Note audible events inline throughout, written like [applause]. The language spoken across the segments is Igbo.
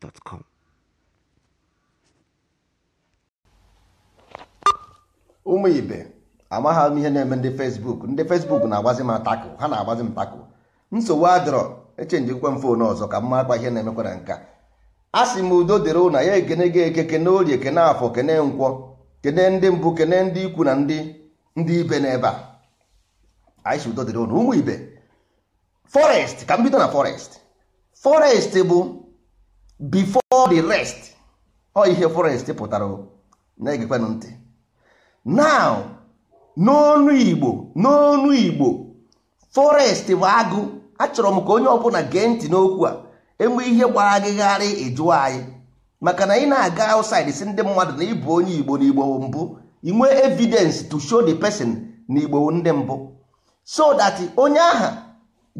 gmail.com. ụmụ ibe amaghị m ihe na-eme ndị fesbuk ndị fesbuk na-agbazi m atakụ ha na-agbazi m takụ nsogbu adọrọ echenjikwa m fon ọzọ ka m makwa ihe na-emekwa na nka a sị m udo dịrị ụna ya ekene gị eke kene orie kene afọ kene nkwọ kene ndị mbụ kene ndị ikwu na ndị ndị ibe n'ebe a anyị sị udo dịrị ụna ụmụ ibe forest ka m bido na forest forest bụ before the rest ọ ihe forest pụtara na-egekwanụ ntị now n'ọnụ igbo n'onu igbo forest bụ agụ achọrọ m ka onye ọbụla gee ntị n'okwu a enwe ihe gbara agịgharị ịjụọ anyị maka na ị na-aga outside si ndị mmadụ na ịbụ onye igbo na igbo mbụ inwe evidence to show the person na igbo ndị mbụ so that onye aha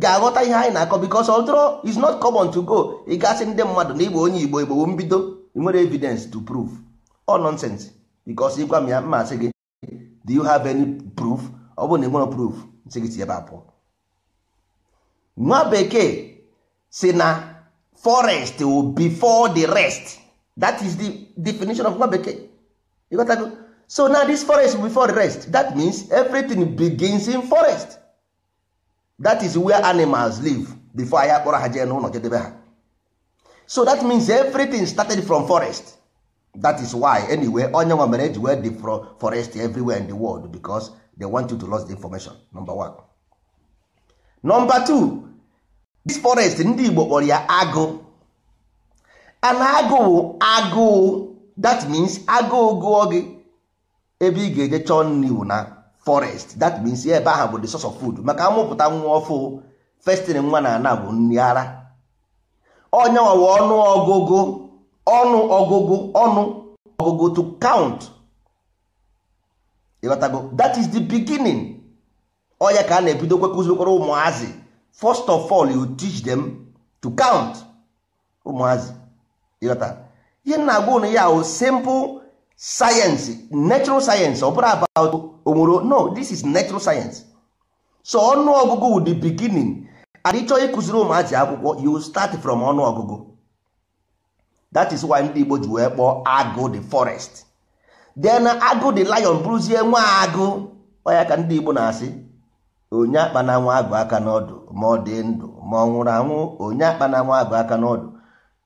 ga-aghọta ihe anyị na-akọ because although it's not common to go ị gasị ndị mmadụ na igbo onye igbo igbo mbido ị nwere evidence to prove all nonsense because ịgwa m ya mma sị gị do you have any proof ọ bụrụ na ị nwere proof sị gị si ebe abụọ nwa bekee si na forest before the rest that is the definition of nwa bekee ịghọtago so now this forest before the rest that means everything begins in forest that is where animals live before anyị akpọrọ ha jee n'ụlọ jedebe ha so that means everything started from forest that is why anyway onye nwa mere eji wee forest everywhere in the world because they want you to lost the information number one. number two this forest ndị Igbo kpọrọ ya agụ and Agụ Agụ that means Agụ gụọ gị ebe ị ga-eje chọọ nri na forest that means ebe ahụ bụ the source of food maka amụpụta nwa ọfụ festin nwa na ana bụ nri ara ọnyanwawa ọnụ ọgụgụ ọnụ ọgụgụ ọnụ ọgụgụ to count ịghọtago that is the beginning ọya ka a na-ebido kwekụzikọrọ ụmụazị first of all you teach them to count ụmụazị ịghọta ihe na-agwa ụnụ ya o simple sayensị natural sayensị ọ bụrụ about onwere no this is natural sayensị so ọnụ ọgụgụ wụ the beginning and ịchọọ ịkụziri ụmụazị akwụkwọ you start from ọnụ ọgụgụ that is why ndị Igbo ji wee kpọọ agụ the forest then agụ the lion bụrụzie nwa agụ ọya ka ndị Igbo na-asị onye akpa na nwa agụ aka n'ọdụ ma ọ dị ndụ ma ọ nwụrụ anwụ onye akpa na nwa agụ aka n'ọdụ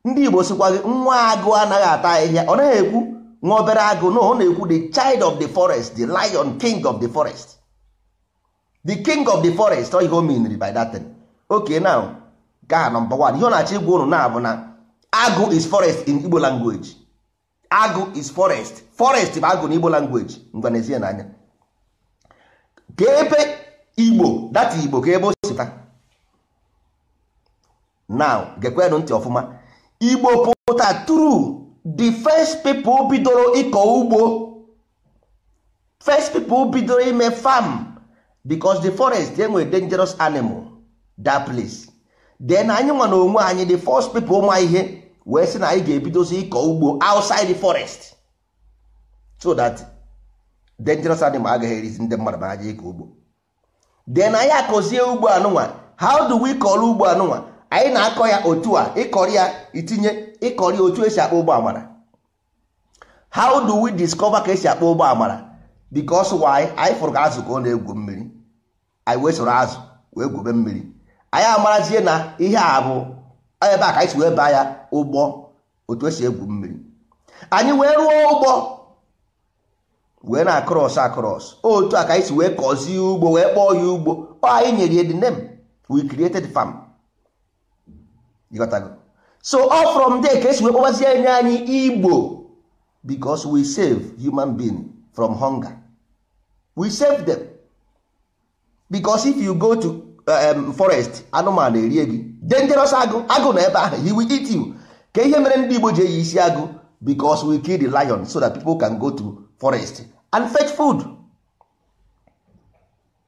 ndị Igbo sịkwa gị nwa agụ anaghị ata ahịhịa ọ naghị ekwu nwa obere agụ na ọ na-ekwu the child of the forest the lion king of the forest the king of the forest ọ oh, ihe o miniri by that thing okay now gaa nọmba 1 ihe ọ na-achọ igwa unu na-abụ na agụ is forest in Igbo language agụ is forest forest bụ agụ na Igbo language ngwa na-ezie n'anya ka ebe Igbo data Igbo ka ebe o now gekwenụ ntị ọfụma Igbo pụta true the first people bidoro ịkọ ugbo first people bidoro ime farm because the forest enwere dangerous animal that place then anyị nwa na onwe anyị the first people ma ihe wee sị na anyị ga-ebidozi ịkọ ugbo outside the forest so that dangerous animal agaghị erizi ndị mmadụ ma aja ịkọ ugbo then anyị akọzie ugbo anụnwa how do we call ugbo anụnwa anyị na-akọ ya otu a ịkọrị ya itinye ịkọrị otu esi akpọ ụgbọ amara how do we discover ka esi akpọ ụgbọ amara because why anyị fụrụ ka azụ ka ọ na-egwu mmiri anyị wee soro azụ wee gwube mmiri anyị amarazie na ihe a bụ ebe a ka anyị si wee baa ya ụgbọ otu esi egwu mmiri anyị wee rụọ ụgbọ wee na akros akros otu a ka anyị si wee kọzie ugbo wee kpọọ ya ugbo ọ anyị nyere ya the name we created farm ịghọtago so all from there ka esi wee anya enye anyị igbo because we save human being from hunger we save them because if you go to uh, um, forest anụmanụ erie gị dangerous agụ agụ na ebe ahụ he will eat you ka ihe mere ndị igbo ji eyi isi agụ because we kill the lion so that people can go to forest and fetch food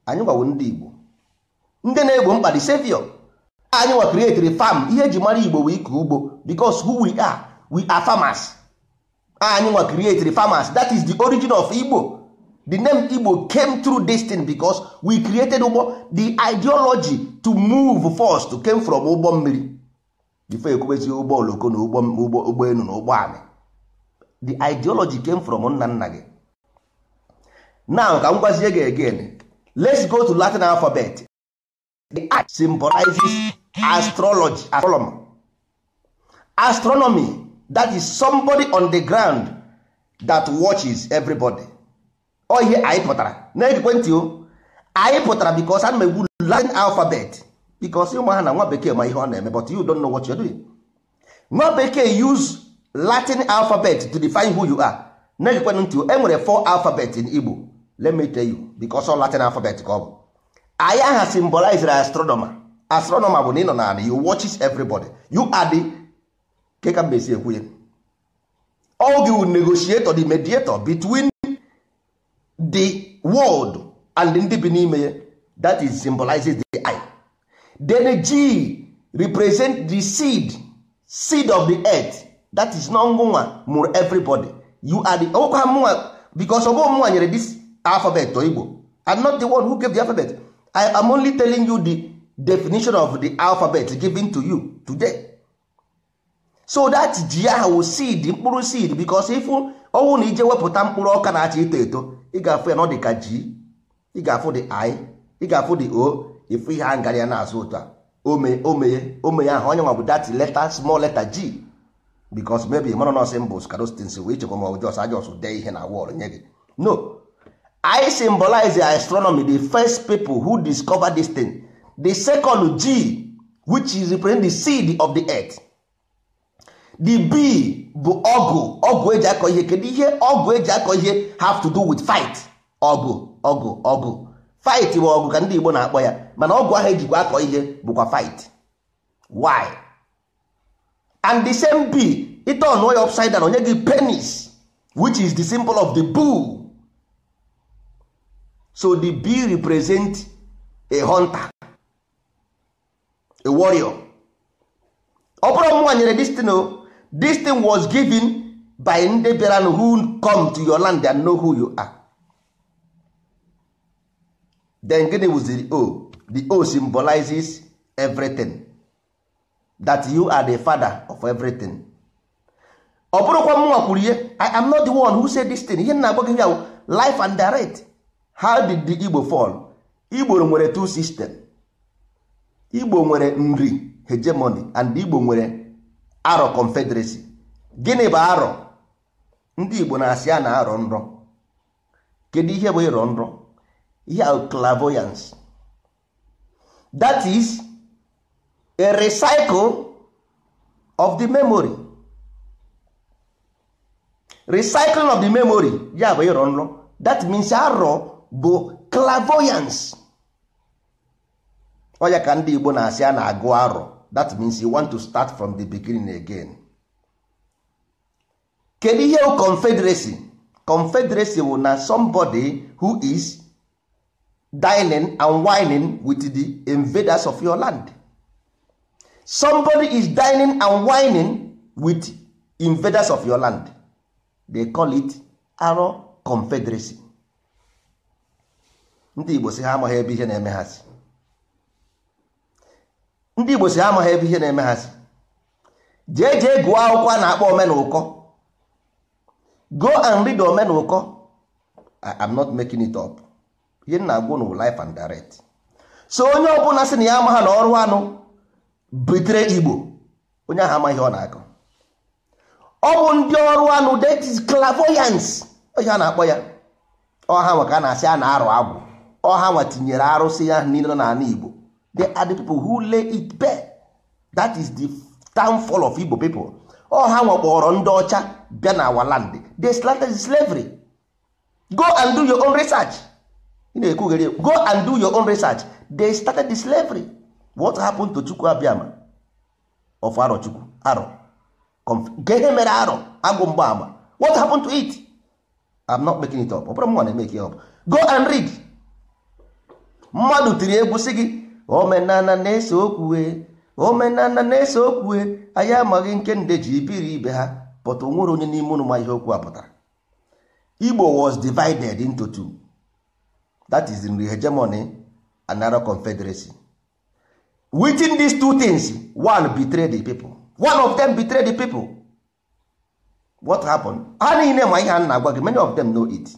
anyị gwawo ndị igbo ndị na-egbo mkpa the savior anyị nwa create farm ihe eji mara igbo wee ike ugbo because who we are we are farmers anyị nwa create farmers that is the origin of igbo the name igbo came through this thing because we created ugbo the ideology to move first came from ugbo mmiri before ekwubezi ụgbọ oloko na ụgbọ elu na ụgbọ ami the ideology came from nna nna gị now ka m gwazie gị again let's go to Latin alphabet the I symbolizes astrology astronomer astronomy that is somebody on the ground that watches everybody ọ ihe anyị pụtara na ekwentị o anyị pụtara because ana m egwu Latin alphabet because ụmụ ha na nwa bekee ma ihe ọ na-eme but you don know what are doing nwa bekee use Latin alphabet to define who you are na ekwentị ntị o, enwere four alphabet in Igbo let me tell you because all Latin alphabet ka ọ bụ anyị aha as astronomer astronomer bụ na ị nọ n'ala you watch everybody you are the ke ka mbe si ekwu ya all the negotiator the mediator between the world and ndị bi n'ime ya that is symbolizes the eye then g represent the seed seed of the earth that is not ngụnwa mụrụ everybody you are the ọgwụkwa mụnwa because ọgwụ mụnwa nyere this alphabet igbo i'm not the one who gave the alphabet i am only telling you the definition of the alphabet given to you today so that ji ahụ seed mkpụrụ seed because ifu ọnwụ na ije wepụta mkpụrụ ọka na-acha eto eto ị ga-afụ ya n'ọdị ka ji ị ga-afụ dị i ị ga-afụ the o ịfụ ihe a ngara ya na-azụ ụtọ ome omeye omeye ahụ onye nwa bụ that letter small letter g because maybe mara nọsị mbụ skarostins wee chekwa ma ọjọs ajọs dee ihe na wọl nye gị no i symbolize astronomy the first people who discover this thing the second g which is represent the seed of the earth the b bụ ọgụ ọgụ eji akọ ihe kedu ihe ọgụ eji akọ ihe have to do with fight ọgụ ọgụ ọgụ fight bụ ọgụ ka ndị Igbo na-akpọ ya mana ọgụ ahụ ejikwa akọ ihe bụkwa fight why and the same b ite ọnụọ ya upside down onye gị penis which is the symbol of the bull so the b represent a hunter a warrior ọ bụrụ nwa nyere destin o destin was given by ndị bịara who come to your land and know who you are then gịnị was the o the o symbolizes everything that you are the father of everything ọ bụrụkwa mụnwa kwuru ihe i am not the one who said this thing ihe na-agba ya life and direct how did the igbo fall igbo nwere two system igbo nwere nri hegemony and igbo nwere arọ confederacy gịnị bụ arọ ndị igbo na-asị a na-arọ nrọ kedu ihe bụ ịrọ nrọ ihe a clairvoyance that is a recycle of the memory recycling of the memory ya bụ ịrọ nrọ that means arọ bụ clairvoyance ọya ka ndị Igbo na-asị a na-agụ arọ that means you want to start from the beginning again. kedu ihe confederacy confederacy bụ na somebody who is dining and wining with the invaders of your land somebody is dining and wining with invaders of your land they call it arọ confederacy ndị Igbo si ha amaghị ebe ihe na-eme ha si ndị igbo si amaghị ebe ihe na-eme ha si jee jee gụọ akwụkwọ a na-akpọ omenụkọ go and read omenụkọ I'm not making it up ihe m na-agwụ na life and direct so onye ọbụla sị na ya amaghị na ọrụ anụ bitere igbo onye ahụ amaghị ọ na-akọ ọ bụ ndị ọrụ anụ that is ihe a na-akpọ ya ọha nwa ka a na-asị a na-arụ agwụ ọha nwa tinyere arụsị ya niile n'ala igbo they are the people who lay it bare that is the downfall of Igbo people ọ ha nwakpọrọ ndị ọcha bịa na our land they slanted slavery go and do your own research na-ekwughere go and do your own research they started the slavery what happened to Chukwu Abiama of Aro Chukwu Aro gee mere Aro agwụ mgbaama what happened to it I'm not making it up ọ bụrụ m nwa na-emeke ya up go and read mmadụ tiri egwu sị gị omenala na-ese okwue omenala na-ese okwue anyị amaghị nke nde ji ibe ha pụta onwere onye n'ime ụnụ ma ihe okwu a pụtara Igbo was divided into two that is the hegemony and narrow confederacy within these two things one betrayed the people one of them betrayed the people what happened ha niile ma ihe a na-agwa gị many of them know it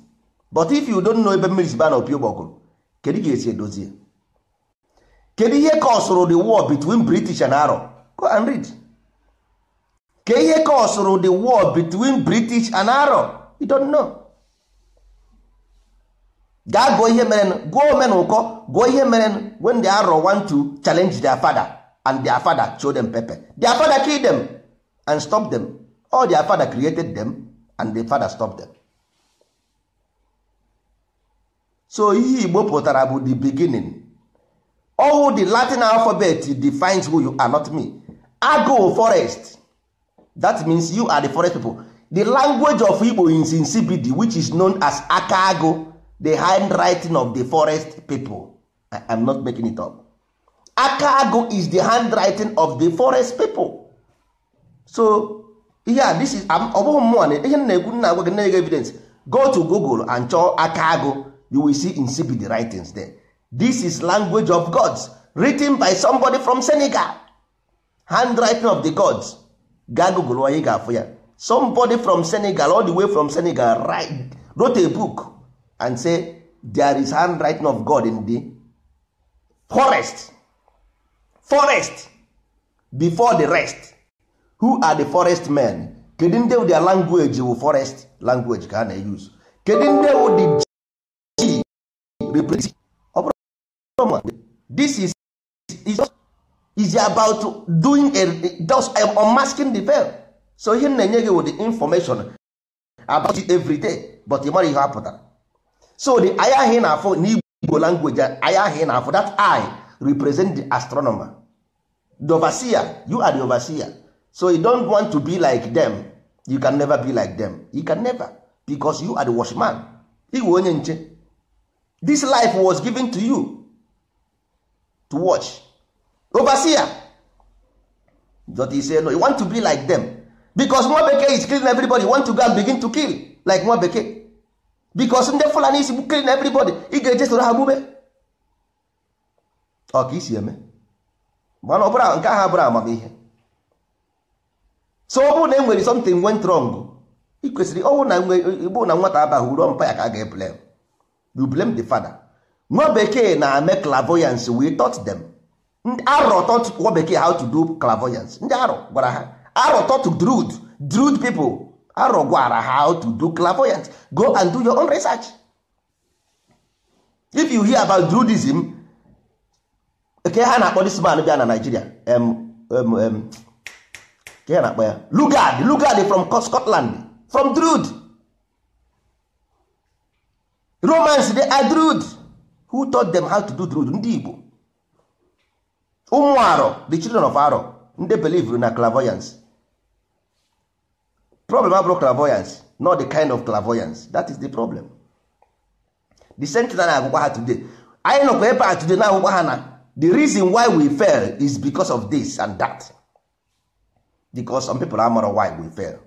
but if you don't know ebe mmiri si ba na opi ụgbọgụrụ kedu ga-esi edozie kedu ihe soro the war between british and arab go and read ka ihe soro the war between british and arab you don't know gaa gụọ ihe mere gụọ ome na ụkọ gụọ ihe merenụ when the arab want to challenge their father and their father show them pepper their father kill them and stop them all their father created them and the father stop them so ihe igbo pụtara bụ the beginning all the latin alphabet defines who you are not me agụ forest that means you are the forest people the language of igbo is insipid which is known as Akaago, the handwriting of the forest people i am not making it up Akaago is the handwriting of the forest people so yeah, this is ọ bụghị mmụọ na ihe na-egwu nna agwa gị na-ege evidence go to google and chọọ Akaago, you will see insipid writings there this is language of gods written by somebody from Senegal handwriting of the gods ga google onye ga-afụ ya somebody from Senegal all the way from Senegal write, wrote a book and say there is handwriting of God in the forest forest before the rest who are the forest men kedu ndị their language wụ forest language ka a na use kedu ndị wụ the g represent this is is just is about doing a just um, unmasking the veil so ihe na-enye gị with the information about it every day but ị mara ihe a pụtara so the eye ahụ ị na-afụ n'igbo language eye ahụ ị na-afụ that eye represent the astronomer the overseer you are the overseer so you don't want to be like them you can never be like them you can never because you are the watchman iwe onye nche this life was given to you to watch overseer jota say no you want to be like them because nwa bekee is killing everybody you want to go and begin to kill like nwa bekee because ndị fulani is killing everybody ị ga-eje soro ha gbube ọ isi eme mana ọbụla nke ahụ abụrụ amamihe so ọ bụrụ na e nwere something went wrong e ị kwesịrị ọnwụ na nwata abaghị uru mpa ya ka a ga-eblem you blame the father nwa bekee na-eme clairvoyance we taught dem arọ taught nwa bekee how to do clairvoyance ndị arọ gwara ha arọ taught drud drud people arọ gwara ha how to do clairvoyance go and do your own research if you hear about drudism ke ha na-akpọ this bịa na Nigeria ke ha na-akpọ ya Lugard Lugard from Scotland from drud romans dey are drud who taught them how to do the road? ndị Igbo ụmụ arọ the children of arọ ndị believe na clairvoyance problem abụrụ clairvoyance not the kind of clairvoyance that is the problem the I na agwụkwa ha today anyị nọkwa ebe a today na agwụkwa ha na the reason why we fail is because of this and that because some people amara why we fail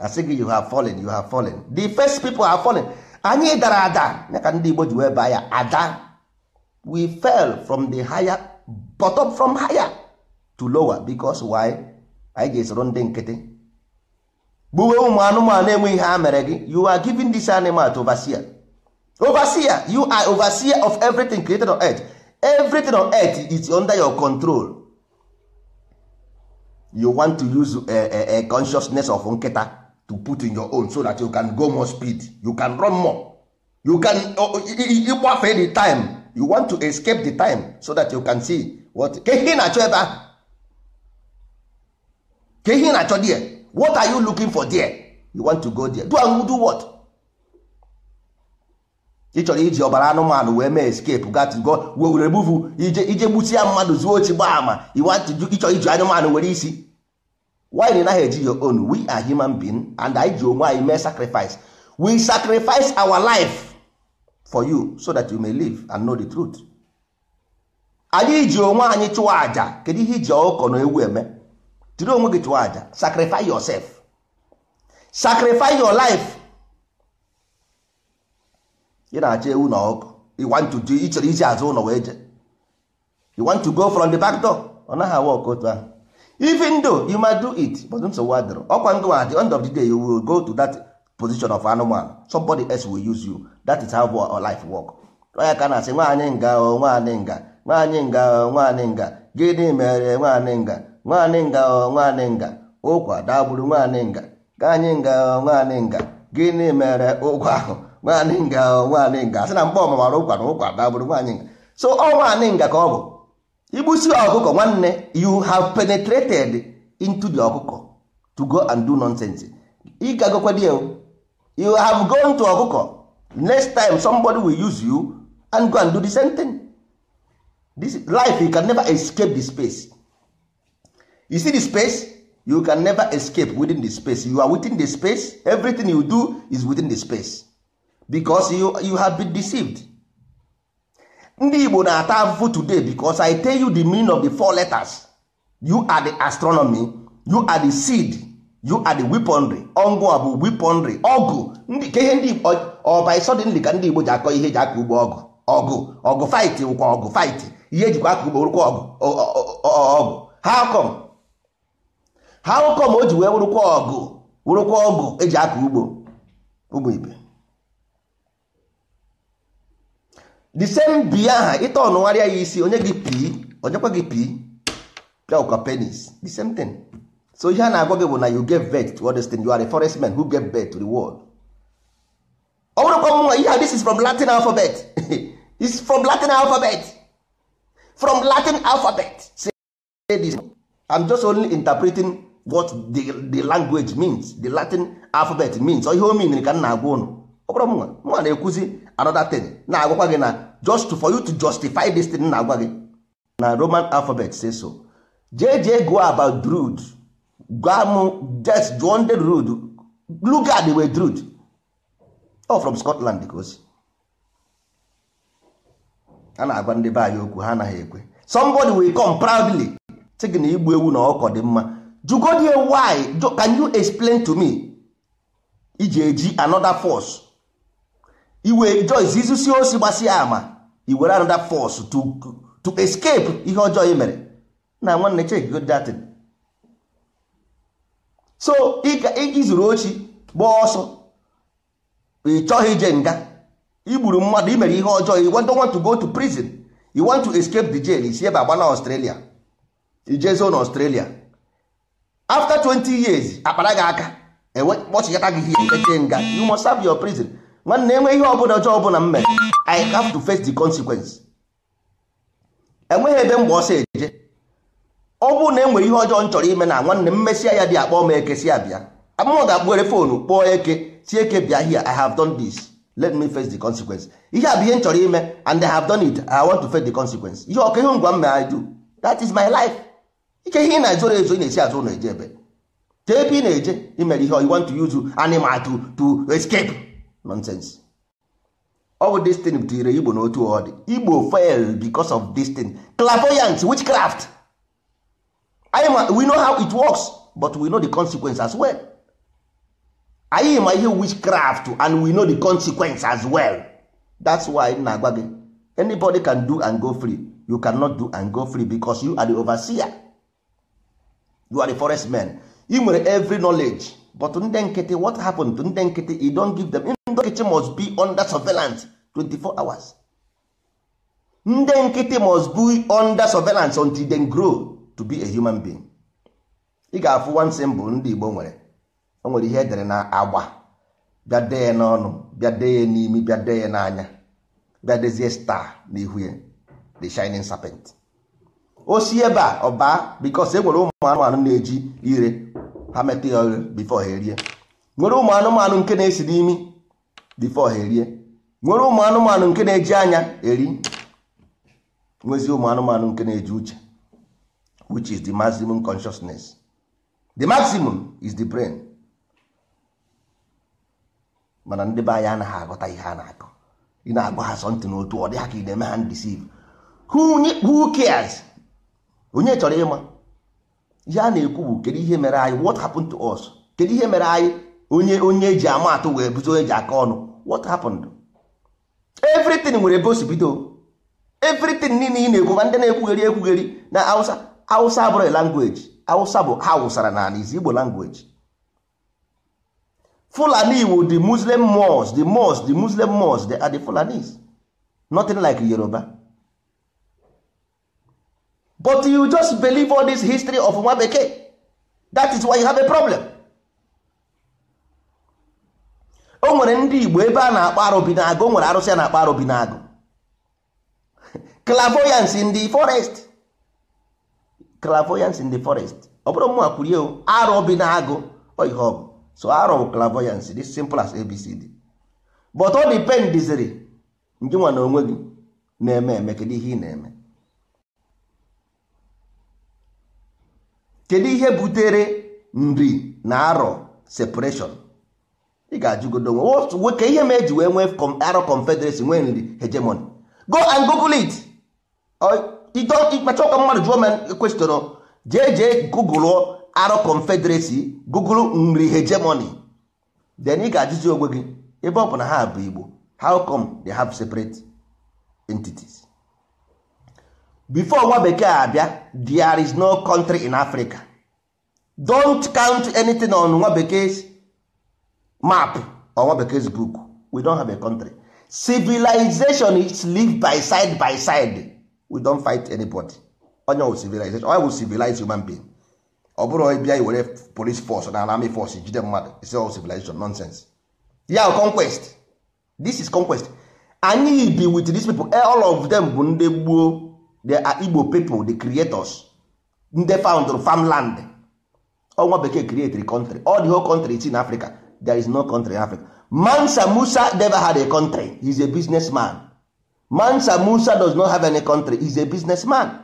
asị gị you have fallen you have fallen the first people have fallen anyị dara ada ya ka ndị Igbo ji wee baa ya ada we fell from the higher bottom from higher to lower because why anyị ga-esoro ndị nkịtị gbuwe ụmụ anụmanụ enweghị ihe a mere gị you are giving this animal to overseer overseer you are overseer of everything created on earth everything on earth is under your control you want to use a, a, a consciousness of nkịta to put in your own so that you can go more speed you can run more you can ịgbafe oh, oh, the time you want to escape the time so that you can see what kehi na-achọ ebe ahụ ka na-achọ there what are you looking for there you want to go there do and do what ị chọrọ iji ọbara anụmanụ wee mee escape go were remove ije ije gbusia mmadụ zuo ochi gbaa ama ịchọrọ iji anụmanụ were isi why na naghị eji your own we are human being and I ji onwe anyị mee sacrifice we sacrifice our life for you so that you may live and know the truth anyị ji onwe anyị chụọ aja kedu ihe iji ọkụkọ na ewu eme jiri onwe gị chụọ aja sacrifice yourself sacrifice your life ị na-achọ ewu na ọkụkọ you want to do ịchọrọ iji azụ ụlọ wee je you want to go from the back door ọ naghị awa ọkụ otu ahụ even though you might do it but nso adịrị ọkwa ndụ at the end of the day you will go to that position of animal somebody else will use you that is how our life work onye ka na-asị nwaanyị nga nwaanyị nga nwaanyị nga nwaanyị nga gịnị mere nwaanyị nga nwaanyị nga oh, nwaanyị nga ụkwa dagburu nwaanyị nga gaanyị nga oh, nwaanyị nga gịnị mere ụkwa ahụ nwaanyị nga oh, nwaanyị nga asị na mgbe ọmụmara ụkwa na ụkwa dagburu nwaanyị nga so ọ nwaanyị nga ka ọ bụ igbusi ọkụkọ nwanne you have penetrated into the ọkụkọ to go and do nonsense ị you have gone to ọkụkọ next time somebody will use you and go and do the same thing this life you can never escape the space you see the space you can never escape within the space you are within the space everything you do is within the space because you, you have been deceived ndị igbo na-ata afụfụ today because i tell you the meaning of the four letters you are the astronomy you are the seed you are the weaponry ọngụ a bụ weaponry ọgụ ka ihe ndị igbo ọ by suddenly ka ndị igbo ji akọ ihe eji aka ugbo ọgụ ọgụ ọgụ fight wụkwa ọgụ fight ihe ejikwa aka ugbo rụkwa ọgụ ọgụ how come how come o ji wee wụrụkwa ọgụ wụrụkwa ọgụ eji aka ugbo ụmụ ibe the same biya aha ịta ọnụgharịa ya isi onye gị onye onyekwa gị pii pịa penis the same thing so ihe a na-agwa gị bụ na you get vet to all you are a forest man who get vet to the world ọ bụrụkwa nwa ihe this is from Latin alphabet [laughs] is from Latin alphabet from Latin alphabet say this I'm just only interpreting what the, the language means the Latin alphabet means ihe o mean ka m na-agwa ụnụ ọ bụrụ nwa nwa na-ekwuzi another thing na-agwakwa gị na just for you to justify this thing na-agwa gị na roman alphabet say so jee go about drud gwam just jụọ ndị drud lugard wey drud o from scotland because. osi a na-agwa ndị be anyị okwu ha anaghị ekwe somebody will come proudly sị gị na igbu ewu na ọkọ dị mma jugodi why can you explain to me iji eji another force iwe Joyce izusi osi gbasịa ama iwere another force to to escape ihe ọjọọ i mere na nwanne check good datin so izuru ochi gbaa ọsọ ị chọghị ije nga igburu mmadụ i mere ihe ọjọọ you don't want to go to prison you want to escape the jail isi ebe agba na Australia ijezo na Australia after 20 years akpara gị aka kpọchịkata gị ihe eche nga you must serve your prison nwanne enwe ihe ọbụla ọjọọ ọbụla m mere i have to face the consequence enweghị ebe mgbe ọsọ eje ọ bụrụ na enwere ihe ọjọọ m chọrọ ime na nwanne m mesịa ya dị akpọ m eke si abịa amụọ ga-akpụghere foonu kpọọ eke si eke bịa here i have done this let me face the consequence ihe a bụ ihe m chọrọ ime and i have done it i want to face the consequence ihe ọka ihe ngwa m mere i do that is my life ike ihe ị na-ezoro ezo ị na-esi azụ na eje ebe jee ebe ị na-eje imere ihe you want to use animal to to escape nonsense ọ bụ destin butere igbo n'otu ọdị igbo fail because of destin clairvoyance witchcraft anyị we know how it works but we know the consequence as well anyị ma ihe witchcraft and we know the consequence as well that's why m na-agwa gị anybody can do and go free you cannot do and go free because you are the overseer you are the forest man ị nwere every knowledge but ndị nkịtị what happened to ndị nkịtị you don't give them nkịtị must be under surveillance 24 hours ndị nkịtị must be under surveillance until they grow to be a human being ị ga-afụ one symbol ndị Igbo nwere o nwere ihe edere na agba bịa dee ya n'ọnụ bịa dee ya n'imi bịa dee ya n'anya bịa dezie star n'ihu ya the shining serpent o si ebe a ọba because e nwere ụmụ anụmanụ na-eji ire ha metụ ya before ha erie nwere ụmụ anụmanụ nke na-esi n'imi before ha erie nwere ụmụ anụmanụ nke na-eji anya eri nwezi ụmụ anụmanụ nke na-eji uche which is the maximum consciousness the maximum is the brain mana ndị be anyị anaghị aghọta ihe a na-akọ ị na-agba ha sọntị n'otu ọ dịghị ha ka ị na-eme ha ndisiv who cares onye chọrọ ịma ihe a na-ekwu bụ kedu ihe mere anyị what happened to us kedu ihe mere anyị onye onye eji ama atụ wee buzi onye ji aka ọnụ what happened everything nwere ebe o everything niile ị na-ekwu ma ndị na-ekwugheri ekwugheri na Hausa Hausa abụrụ language Hausa bụ ha wụsara n'ala izi Igbo language Fulani iwu the Muslim mosque the mosque the Muslim mosque they are the Fulanis nothing like Yoruba but you just believe all this history of nwa bekee that is why you have a problem o nwere ndị igbo ebe a na-akpọ arụbi na-agụ o nwere arụsị a na-akpọ arụbi na-agụ [laughs] clavoyance in the forest clavoyance in the forest ọ bụrụ mụ akwụrie arụbi na-agụ ihe ọ bụ so arọ bụ clavoyance dị simple as abcd but ọ dipendiziri njinwa na onwe gị na-eme eme kedu ihe ị na-eme kedu ihe butere nri na arọ separation ị ga-ajụgodo onwe ka ihe ma eji wee nwee arọ confederacy nwee nri hegemony go and google it ịkpachakwa mmadụ jụọ m e kwestion jee jee google arọ confederacy google nri hegemony then ị ga-ajụzi onwe gị ebe ọ bụ ha bụ igbo how come they have separate entities before nwa bekee abịa there is no country in africa don't count anything on nwa bekee map or nwa bekee book we don have a country civilization is live by side by side we don fight anybody onye wụ civilization onye wụ civilize human being ọ bụrụ bịa iwere police force na army force jide mmadụ isi ọ civilization nonsense ya conquest this is conquest anyị bi with these people eh, all of them bụ ndị gboo the ah, igbo people the creators ndị found farmland ọnwa bekee create the country all the whole country is in africa there is no country in africa mansa musa never had a country he is a businessman mansa musa does not have any country he is a businessman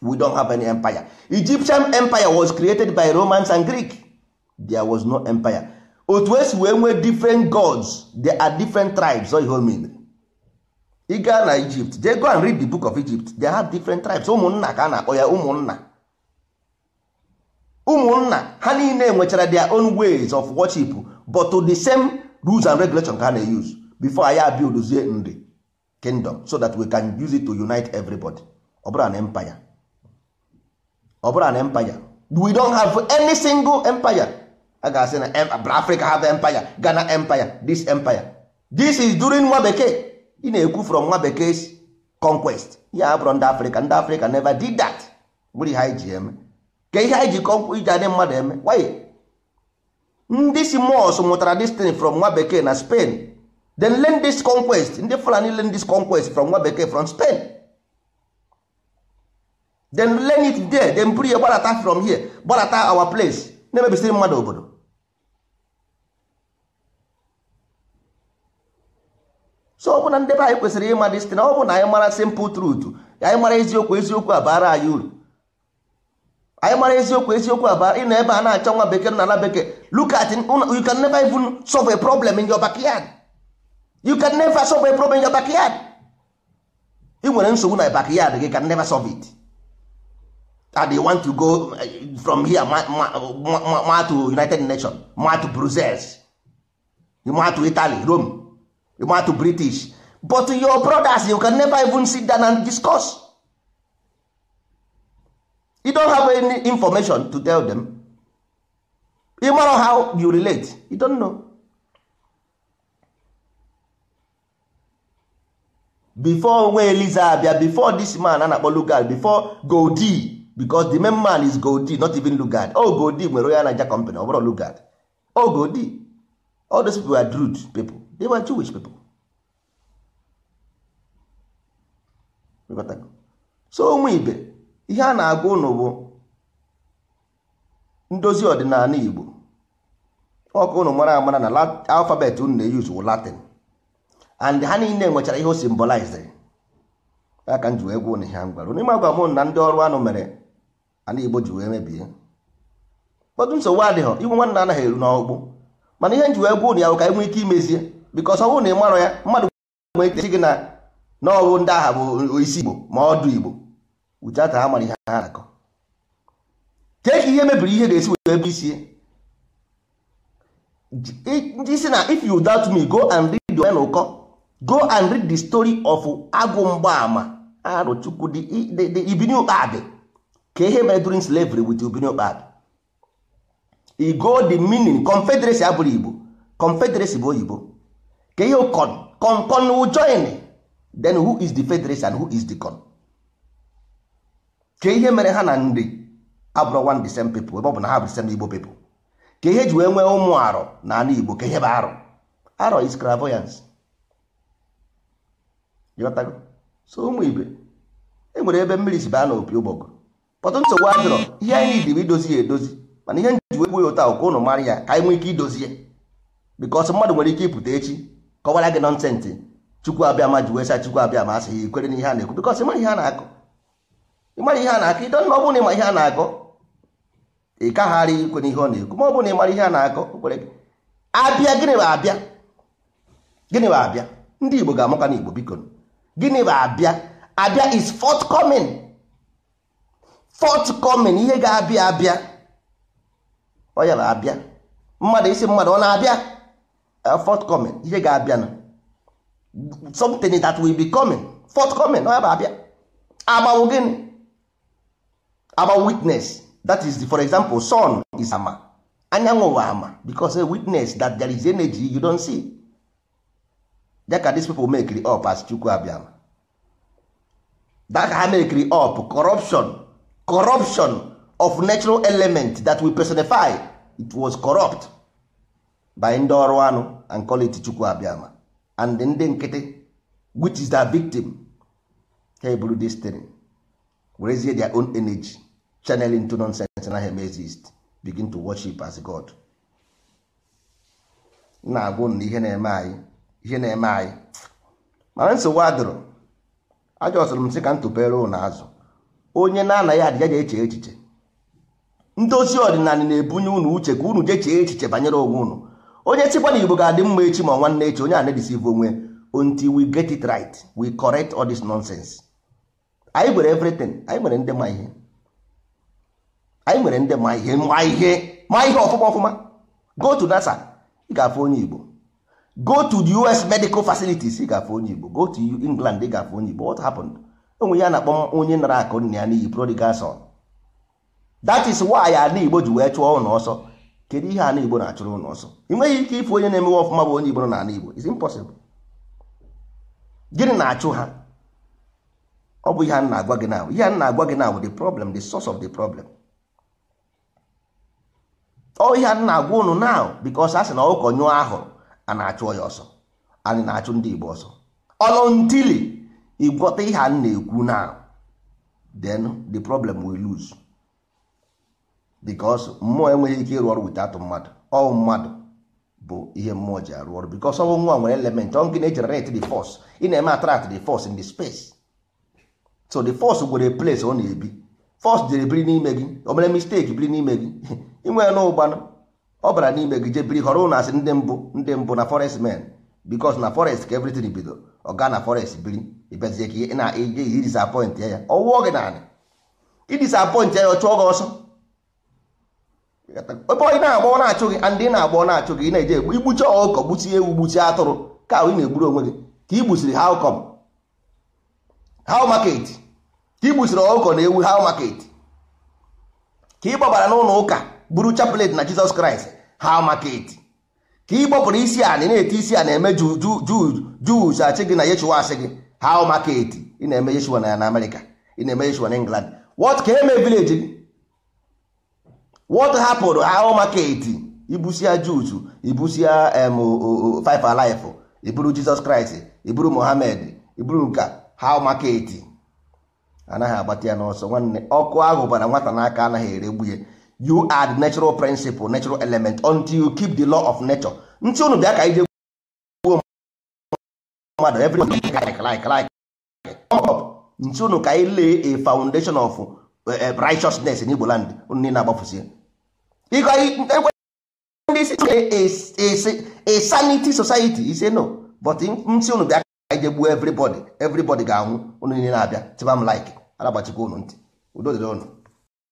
we don't have any empire egyptian empire was created by romans and greek there was no empire otu esi wee nwee different gods there are different tribes so ihe mean na egypt they go and read the book of egypt they have different tribes ụmụnna ka a na-akpọ ya ụmụnna ụmụnna ha niile nwechara their own ways of worship but to the same rules and regulation ka ha na-use before anyị abildozie nri kingdom so that we can use it to unite everybody ọ bụrụ na empire ọ bụrụ na empire we don't have any single empire a ga-asị na Africa have empire Ghana empire this empire this is during nwa bekee ị na-ekwu from nwa bekee conquest ya abụrụ ndị Africa ndị Africa never did that were ha ji eme ka ihe anyị ji kọnkwụ iji adị mmadụ eme why ndị si mos mụtara destin from nwa bekee na spain then learn this conquest ndị fulani learn this conquest from nwa bekee from spain then learn it there then buru ya gbarata from here gbarata our place na-emebisiri mmadụ obodo so ọ bụ na ndị be anyị kwesịrị ịma destin ọ bụ na anyị mara simple truth anyị mara eziokwu eziokwu abara anyị uru anyị mara eziokwu eziokwu aba ị na ebe a na-achọ nwa bekee na ala bekee look at you can never even solve a problem in your backyard you can never solve a problem in your backyard ị nwere nsogbu na backyard gị can never solve it and you want to go eh, from here ma, to united nations ma to brussels ma to italy rome ma to british but your brothers you can never even sit down and discuss you don't have any information to tell them you know how you relate you don't know before nwa eliza Abia before this man a akpọ lugard before goldi because the main man is goldi not even lugard oh goldi nwere onye anaja company ọ bụrụ lugard oh goldi all those people were drude people they were jewish people so onwe ibe ihe a na-agwa ụnụ bụ ndozi ọdịnala Igbo Ọkụ ụnụ mara amara na alfabet unu na-eyuzu wụ Latin and ha niile nwechara ihe o simbolized aka m ji wee gwa ụnụ ihe m n'ime agwa m na ndị ọrụ anụ mere ala Igbo ji wee mebie ụfọdụ nsogbu adịghị igwe nwanna anaghị eru n'ọgbụ mana ihe m ji wee gwa ụnụ ya bụ ka enwee ike imezie bikọs ọ bụrụ na ị marọ ya mmadụ gwere gị na n'ọrụ ndị agha bụ isi Igbo ma ọdụ Igbo without ha mara ihe ha na-akọ tee ihe mebiri ihe ga-esi wee ebe isi ndị isi na if you doubt me go and read the ụkọ go and read the story of agụ mgbaama arụchukwu ah, the ibiniokpadị ka ihe mere during slavery with ibiniokpadị igo the meaning confederacy abụrụ igbo confederacy bụ oyibo ka ihe con con con join then who is the federation and who is the con ka ihe mere ha na ndị abụrụ one the same people ebe ọ bụ na ha bụ same igbo people ka ihe ji wee nwee ụmụ arọ na anụ igbo ka ihe bụ arọ arọ is clairvoyance ịghọtago so ụmụ ibe e nwere ebe mmiri si baa na opi ụgbọgụ pọtụ nsogbu adịrọ ihe anyị dị bụ idozi ya edozi mana ihe nji wegbu ya ụta ụka ụnụ mara ya ka anyị nwee ike idozi ya bikọs mmadụ nwere ike ịpụta echi kọwara gị nọ nọnsensị chukwu abịa ma ji wee sa chukwu abịa ma asị ya ikwere ihe a na-ekwu bikọs ịma ihe a na-akụ ịmara ihe a na-akọ ịdọ na ọ bụrụ na ịma ihe a na-akọ ị kagharị ikwe n'ihe ọ na-ekwu ma ọ bụrụ na ịmara ihe a na-akọ kwere gị abịa gịnị bụ abịa gịnị bụ abịa ndị Igbo ga-amụka na Igbo biko gịnị bụ abịa abịa is forthcoming forthcoming ihe ga-abịa abịa ọ ya bụ abịa mmadụ isi mmadụ ọ na-abịa uh, forthcoming ihe ga-abịa na something that will be coming forthcoming ọ ya bụ abịa agbanwe gịnị our witness that is the, for example sun is ama anyanwụ bụ ama because a witness that there is energy you don see that ka these people make it up as chukwu abịama that ka ha make it up corruption corruption of natural element that we personify it was corrupt by ndị ọrụ anụ and call it chukwu abịama and ndị nkịtị which is their victim ha eburu this thing werezie their own energy channeling to nonsense na hem exist begin to worship as god na-agwụ na ihe na-eme anyị ihe na-eme anyị mana nsogbu adụrụ ajọsụrụ m sị ka m tụpere ụlọ azụ onye na-anaghị adịga ga eche echiche ndozi ọdịnala na-ebunye ụnụ uche ka unu jechee echiche banyere onwe ụnụ onye sikwa na igbo ga-adị mma echi ma nwanne echi onye a na-edisive onwe until we get it right we correct all this nonsense anyị nwere everything anyị nwere ndị ma ihe anyị nwere ndị ma ihe ma ihe ma ihe ọfụma ọfụma go to nasa ị ga-afụ onye igbo go to the us medical facilities ị ga-afụ onye igbo go to england ị ga-afụ onye igbo what happened enwe ya na-akpọ onye nara akụ nna ya n'iyi prodigal son that is why a na igbo ji wee chụọ ụlọ ọsọ kedu ihe a na igbo na-achụrụ ụlọ ọsọ ị nweghị ike ịfụ onye na-emewe ọfụma bụ onye igbo na ana igbo is impossible gịnị na-achụ ha ọ bụ ihe a na-agwa gị now ihe a na-agwa gị now the problem the source of the problem ọ ihe a na-agwa ụnụ now because a sị na ụkọ nyụọ ahụrụ a na-achụ ya ọsọ anyị na-achụ ndị Igbo ọsọ ọlọntili ịgwọta ihe a na-ekwu now then the problem will lose because mmụọ enweghị ike ịrụ ọrụ without mmadụ ọ mmadụ bụ ihe mmụọ ji arụ ọrụ because ọnwụ nwa nwere element ọ nke na-ejenerate the force ị na-eme attract the force in the space so the force gwere place ọ na-ebi force jere biri n'ime gị o mere mistake biri n'ime gị [laughs] inwe na ụgbanụ ọ bara n'ime gị je biri họrọ ụlọ asị ndị mbụ ndị mbụ na forest men bikos na forest ka everything bido ọ gaa na forest biri ịbịazie ka ị na-eje i disappoint ya ya ọwụọ gị naanị i disappoint ya ya ọ chụọ gị ọsọ ebe ọ na-agba ọ na-achụ gị ndị na-agba ọ na-achụ gị ị na-eje egbu igbuchi ọkọ gbuchie ewu gbuchie atụrụ ka ị na-egburu onwe gị ka i gbusiri ha ụkọm how market ka ị gbusiri ọkụkọ na ewu how market ka ị gbabara n'ụlọ ụka buru chapelet na jizọs kraịst how market ka ị gbapụrụ isi a na na-ete isi a na-eme juu achị gị na yeshua asị gị how market ị na-eme yeshua na amerịka ị na-eme yeshua na england what ka eme village gị what hapụrụ how market ibusia juzu ibusia em five alive iburu jizọs kraịst iburu mohamed iburu nka how market anaghị agbata ya n'ọsọ nwanne ọkụ ahụ bara nwata n'aka anaghị ere you add natural principle natural element until you keep the law of nature ntị unu bịa ka ije gbuo mmadụ ntị unu ka anyị a foundation eh, eh, anyị jegbuo everybody everybody ga-anwụ unu niile na-abịa tiba m like anagbachikwa unu ntị udo dịrị ọnụ.